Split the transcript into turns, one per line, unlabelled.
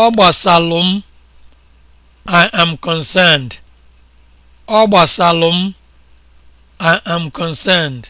Ọ gbasalụ m, I am concerned. I am concerned.